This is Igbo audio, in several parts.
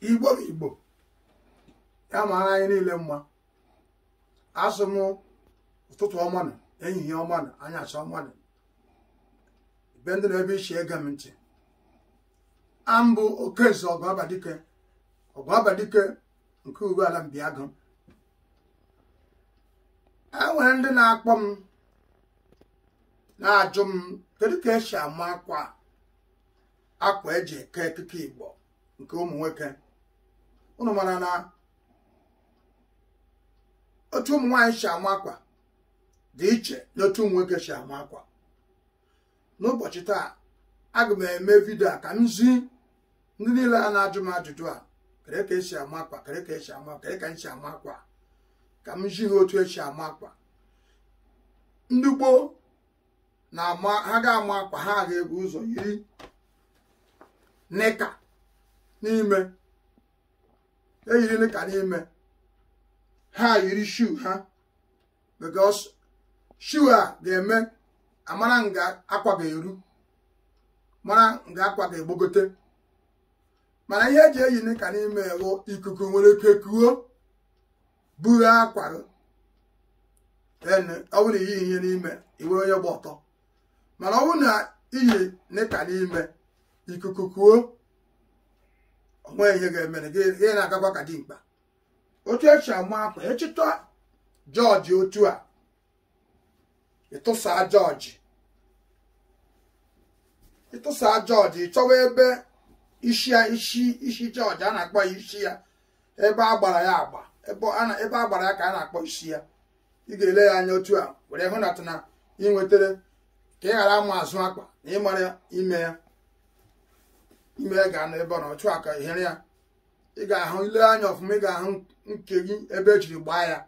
igbo igbo ya mara anyị niile mma asụ m ụtụtụ ọma na ehihie ọma na anyasị ọma na be ndị na ebe iche ege m ntị ambụ okeze ọgụ abadike abadike nke uwe ala mbiagụ e nwere ndị na-akpọ m na-ajụ m kedu ka esi ama akwa akwa eji eke ekike igbo nke ụmụ nwoke unu mara na otu ụmụ nwaanyị si ama akwa dị iche na otu ụmụ nwoke si ama akwa n'ụbọchị taa aga m eme vidio a ka m zi ndị niile a na-ajụ m ajụjụ a kere ka esi ama akwa kere ka esi ama kere ka m si ama akwa ka m zi ha otu esi ama akwa ndị gboo na-ama ha ga-ama akwa ha ga-ebu ụzọ yiri nịka n'ime eyiri ka n'ime ha yiri shu ha because shu a ah, ga-eme amara nga akwa ga-eru mara nga akwa ga-egbogote mana ihe eji eyi ka n'ime bụ ikuku nwere ike kuo buru akwa ọ bụrụ iyi ihe n'ime iwere onye gba ọtọ mana ọ bụrụ na iyi nika n'ime ikuku kuo onwe ihe ga-emere gị ihe na-agakwa ka dimkpa otu echi ama akwa echịtọ jọji otu a ịtụsa jọji ịtụsa jọji chọwa ebe isi ya isi isi jọji a na-akpọ ya isi ya ebe a gbara ya agba ebe a gbara ya ka a na-akpọ isi ya ị ga-ele ya anya otu a were hụ na ị nwetara ka ị ghara ama azụ akpa na ịmara ime ya ime ga na ebe ọ na ọchụ aka ihere ya ị ga-ahụ ile anya ọfụma ị ga-ahụ nke gị ebe e jiri gbaa ya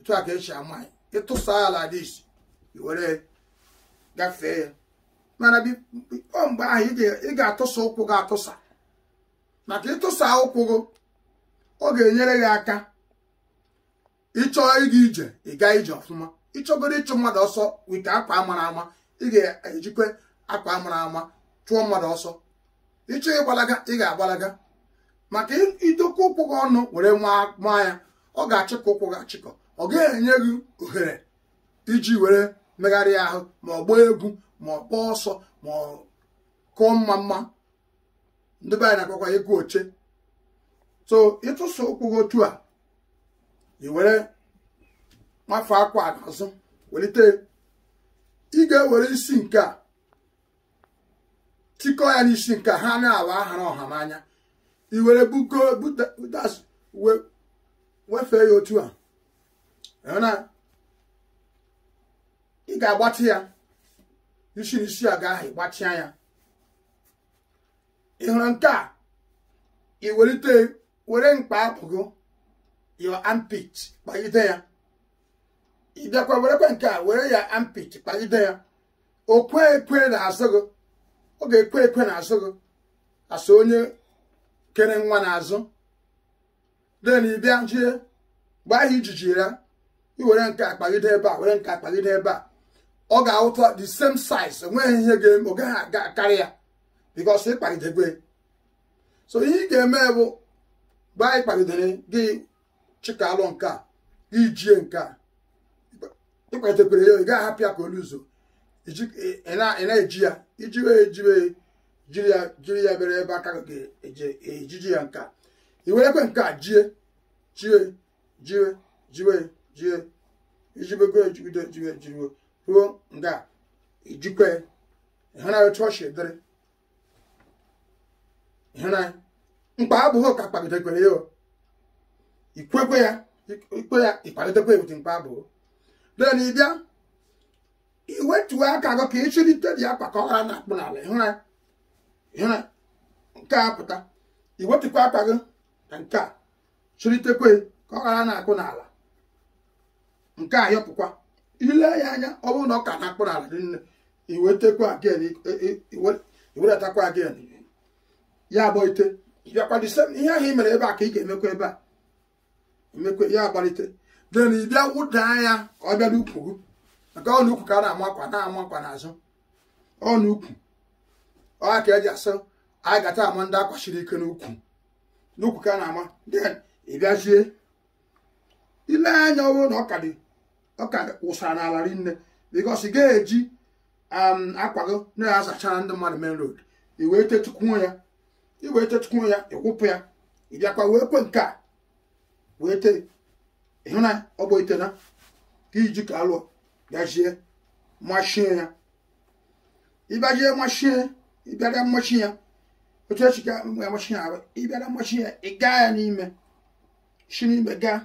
otu a ka esi ama ya ịtụsa ala dị iwere gafee ya mana ọ mgbe ahụ ị ga-atụsa ụkwụ gị atụsa maka ịtụsa ụkwụ gị ọ ga-enyere gị aka ịchọ ịga ije ịga ije ọfụma ịchọgoro ịchụ mmadụ ọsọ wike akwa mara ama ị ga-ejikwa akwa mara ama chụọ mmadụ ọsọ ịchọ ịgbalaga ị ga-agbalaga maka idokwa ụkwụ gị ọnụ were nwa ya ọ ga-achịkọ ụkwụ gị achịkọ ọ ga-enye gị ohere iji were megharịa ahụ ma ọ gbaa egwu ma ọ kpọọ ọsọ ma ọ kụọ mma mma ndị be anyị na-akpọkwa ịgụ oche so ịtụsa ụkwụ gị otu a ị were akwa n'azụ welite ị ga-ewere isi nke a chikọ ya n'isi nke ha na-awa ahụrụ ọha n'anya iwere bugo wefee ya otu a na ị ga-agbatị ya isi n'isi a ga-ahụ ịgbatịa ya ị hụrụ nke a iwelite were mkpa apụgo your armpit kpagide ya ị bịakwa werekwa nke a were ya armpit kpagide ya o kwe ekwe na azụ gị ọ ga-ekwe ekwe n'azụ gị asụ onye kere nwa n'azụ den ịbịa jie gbaa ihe ijiji ya iwere nke akpagide ebe a were nke akpagide ebe a ọ ga-awụta the same size enweghị ihe ga-eme ọ gaghị aga karị ya because ịkpagidegwe so ihe ị ga-eme bụ gbaa ịkpagidere gị chikalụ nke a gị jie nke a ịkpagidekwere ya ị gaghị hapụ ya ka oluzo ị e, e na-eji e ya ijiwe ejiwe jiri ya bere ebe aka ga-ejiji ya nka iwere werekwe nke a jie jiwe jiwe jiwe jie ijibego ejibido jiwe jiriwe ruo nga ijikwe ịhụnanya otu ọ si dịrị ịhụnanya mkpa abụghị ka kpalidekwere ya ikwekwe ya ikpe ya ịkpalitekwe ebute mkpa abụghị dee na ịbịa iwe iwetuwe aka gị ka ịchịrịte dị akpa ka ọ ghara na akpụ n'ala ịhụra nke a pụta iwetukwa aka gị na nke a chịrịtekwe ka ọ ghara na-akpụ n'ala nke a yọpụkwa ile ya anya ọ bụrụ na ọ ka na-akpụ n'ala dị nne iwetekwa again iwedatakwa again ya agbalite bịakwa dị sem ihe ahụ mere ebe a ka ị ga-emekwa ebe a emekwa ya agbalite den ị bịa wụdaa ya ka ọ bịa n'ukwu gị maka ọnụ ukwu ka a na-amakwa na-amakwa n'azụ ọnụ ukwu ọha ka eji asụ anyị gata ama ndị akwachiri ike n'ukwu n'ukwu ka a na-ama then ịbịazie ile anya ọwụ na ọka dị ọka wụsara n'ala rinne bikos ị ga-eji um, akwago na-azachara ndị mmadụ main road iwee tetukwuo ya iwee tetukwuo ya ịkwụpụ ya ịbịakwa wee kwe nke a wee tee ịhụ na ọ bụ itena ka iji ka alụọ bịazie machie ya ịbịazie machie ya otu echi ga amachi ya arụ ịbịara ya ị gaa ya n'ime si n'ime gaa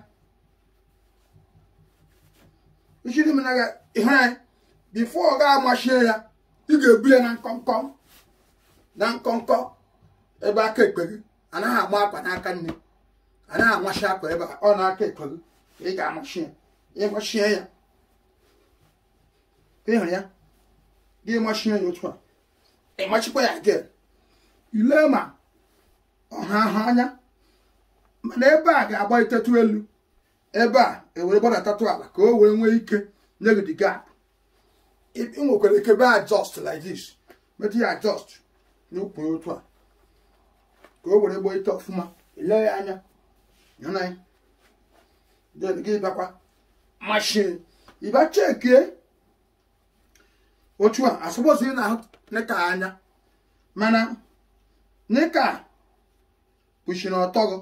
isi na ihe anyị bifo amachie ya ị ga-ebu ya na na nkọnkọ ebe aka ekpe gị anaghị agba akwa n'aka nne anaghị amachi akwa ebe ọ na-aka ekpe gị ị ga ya ịhụ ya gị machi anya otu a ịmachikwa ya gị ile ma ọha uh-huh, uh-huh, ahụ anya mana ebe a ga-agba itetu elu ebe a ewere gbadatatụ ala ka o wee nwee ike nye gị the gap ị nwekwara ike be adjust like this metụ ya adjust n'ukwu otu a ka o were gbo ite ọfụma ile ya anya nyana ya gị bakwa mashin ịba chekie otu a asọpọsọ ị na-ahụ nika anya mana nika kpuchiri ọtọ gị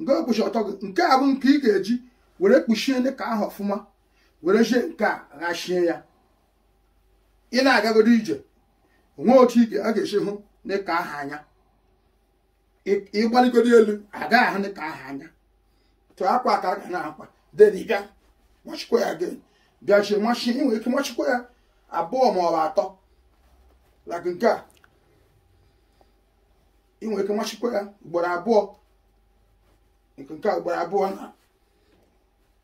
nke kpuchi ọtọ gị nke a bụ nke ị ga-eji were kpuchie nika ahụ ọfụma were jie nke a ghachie ya ị na-agagodo ije onwe otu a ga-esi hụ nika ahụ anya ịgbaligodo elu agaghị ahụ nika ahụ anya tụọ akwa ka a ga na-akwa deniga machikwa ya gị bịa jie machi nwere ike machikwa ya abụọ maọbụ atọ like nke a ị ike machikwa ya ugboro abụọ nke nke a ugboro abụọ na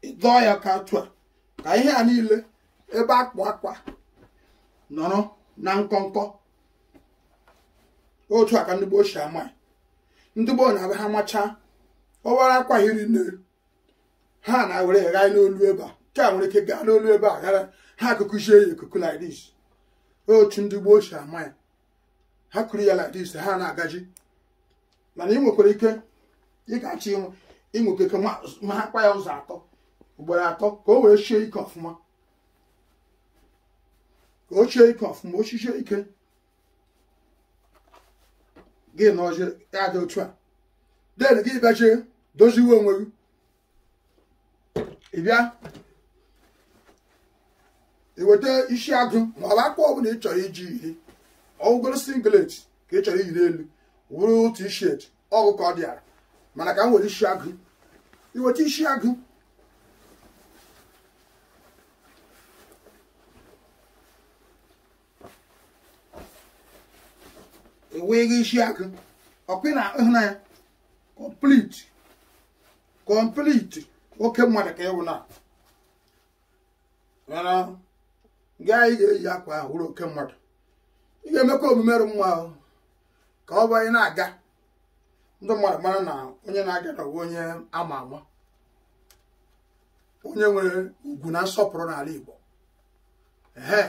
ịdọọ ya ka atụ a ka ihe a niile ebe akpụ akwa nọrọ na nkọnkọ otu a ka ndị gboo si ama ndị gboo na-abịa ha machaa ọwara akwa hiri nne ha na-ewere n'olu ebe a nke a nwere ike gaa n'olu ebe a ghara ha kụkụzie ya ikuku lidis otu ndị gboo si ama ya ha kụrụ ya lidis ha na-agaji mana ị nwekwara ike ị ga-achọ ịnwụ ịnwekwa ike ma ha kpa ya ụzọ atọ ugboro atọ ka o wee chie ike ọfụma ka o chie ike ọfụma o chichie ike gị na ọjị ya dị otu a den gị bịa doziwe onwe gị ị iweta isi agụ ma ọ akwa ọbụla ị chọrọ iji ihe ọgwụgoro singlet ka ị chọrọ iyiri elu wuru otu t-shirt ọgụ ka ọ dịara mana ka m nwere isi agụ iweta isi agụ enweghị isi agụ ọkpị na ịhụnanya kọmplit kọmplit oke mmadụ ka ịwụ na gaa anyị ga-eji akwa ahụ wụrụ oke mmadụ ị ga-emekwa omume rụ nwa ahụ ka ọ bụ ị na-aga ndị mmadụ mara na onye na-aga na onye ama ama onye nwere ugwu na nsọpụrụ n'ala Igbo ee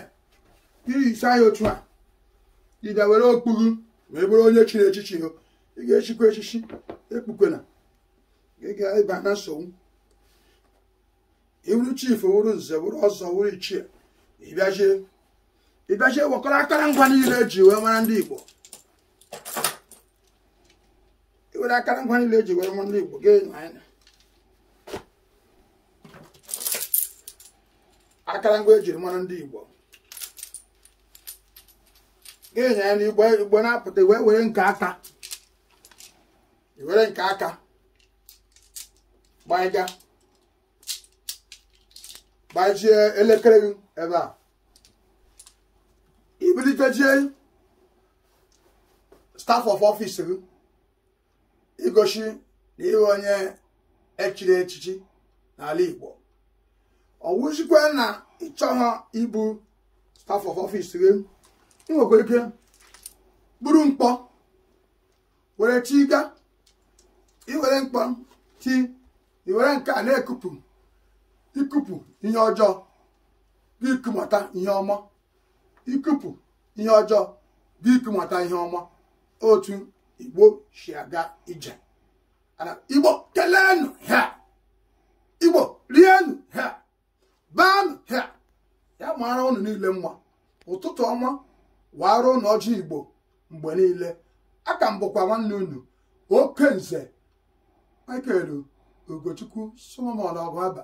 ihicha ya otu a ịbịa were okpughu wee bụrụ onye chiri echichi ị ga-echikwa echichi ekpukwena ị ga-ịba na nsogbu iwuru chifu wuru nze wuru ọzọ wuru ichie ịbịazie ịbịazie wekọrọ akara ngwa niile eji wee mara ndị Igbo iwere akara ngwa ndị Igbo akara ngwa ejiri mara ndị Igbo ga ya na e igbo na-apụta wee were nke aka gbaa nke gbajie elekere gị ebe a ibilitejie staf of ọfịs gị igosi na ịhụ onye echiri echichi n'ala Igbo ọ wụzikwe na ịchọghọ ibu staf of ọfịs gị nwekwara ike buru mkpọ were tiga iwere mkpọ ti iwere nke a na-ekupụ ikupu ihe ọjọọ bụ ikumata ihe ọma otu igbo si aga ije igbo keleenụ ha igbo rienụ ha baanụ ha ya mara unu niile mma ụtụtụ ọma wara ụnụ ọjị igbo mgbe niile aka m bụkwa nwanne unu okenze michael ugochukwu solomon ọgụaba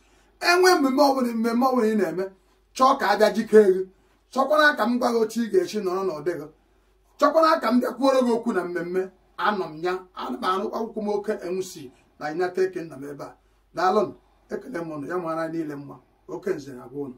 enwe mmemme ọbụla mmemme ọbụla ị na-eme chọọ ka a bịa jikee gị chọkwara ka m gwa gị otu ị ga-echi nọrọ n'ụdị gị chọkwara ka m bịakwuoro gị okwu na mmemme anọ m ya ana m arụ akwụkwọ m oke enwusi na United Kingdom ebe a daalụ ekele m ụnụ ya mara niile mma oke nze na gwa ụnụ